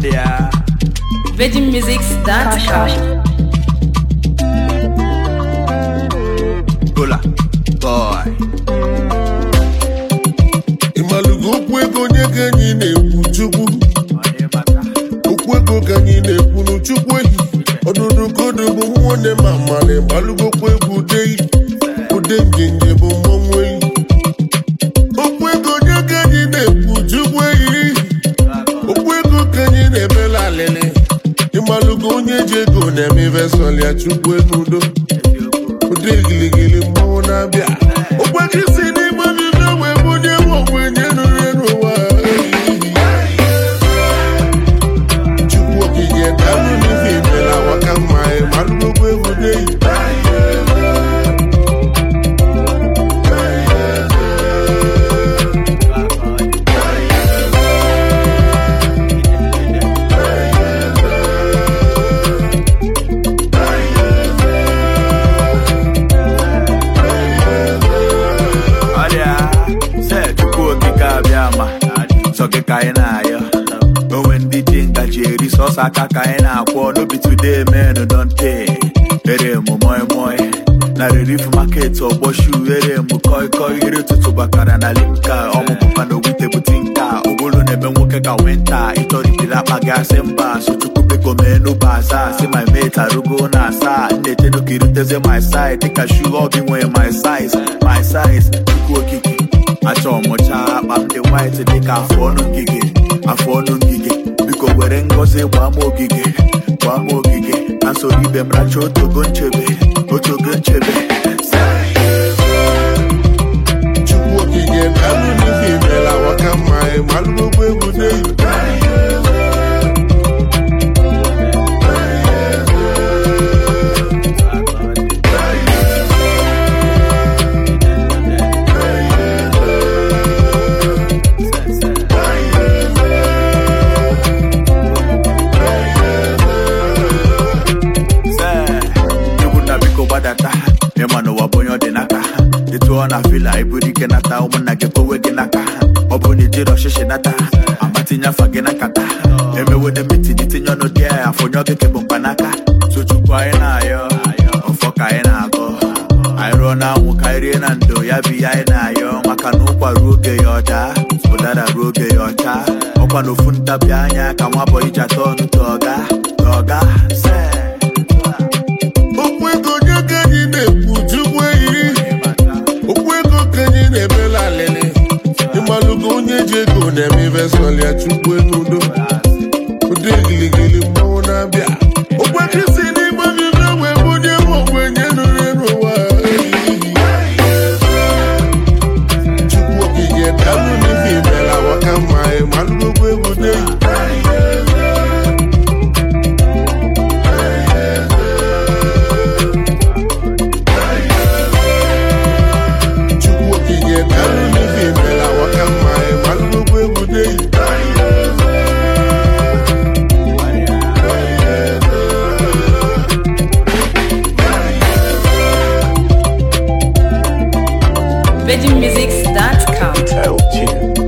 there. okwu ego onye na-ekwu Chukwu. Okwu ego na-ekwu ehi. Ọdụdụ kodo bụ nwanne ma mmalị. okwu ego ude ude ọgụ onye ji ego na-eme ivesọl ya chukwu n'udo ụdị gịlịgịlị mmanwụ na-abịa ofe aka ka anyị na-akwọ n'obi today men don ere mụ moi moi na relief market ọgbọ oh, shu ere mụ koi koi tụtụ ụtụtụ bakara na limka ọmụpụpa na ogwute bute nka ụbụrụ na-eme nwoke ka wenta ịtọrịtiri akpa gị asị mba so chukwu biko mee n'ụba asaa si my mate arụgo na asaa nna-eche n'oke iruteze my side dịka shu ọ oh, nwee my size my size chukwu okike achọ ọmụcha. akpa m dị white dịka afọ ọnụ ngige afọ ọnụ ngige were ngozi gbaa m ogige nwa ama ogige na soro ibe otogo nchebe otogo nchebe gụọ na vila iburu ike nata ụmụnna gị kowe gị n'aka ọ bụ na ijiri ọchịchị nata amatinye afọ gị na nkata emewede mitin tinye ọnụ dị ya afọ nye ọgịke bụ mkpanaka tuchukwu anyị na-ayọ ọfọ ka anyị na-agọ anyị rụọ na anwụ ka rie na ndo ya bụ ihe anyị na-ayọ maka na ụkwa ruo oge ya ọda ụdara ruo oge ya ọcha ọkwa na ofu ntabi anya ka nwa bọ iji atọ ọnụ tọga tọga ego na-eme vestọl ya chukwu n'udo ụdị VeggieMusics.com.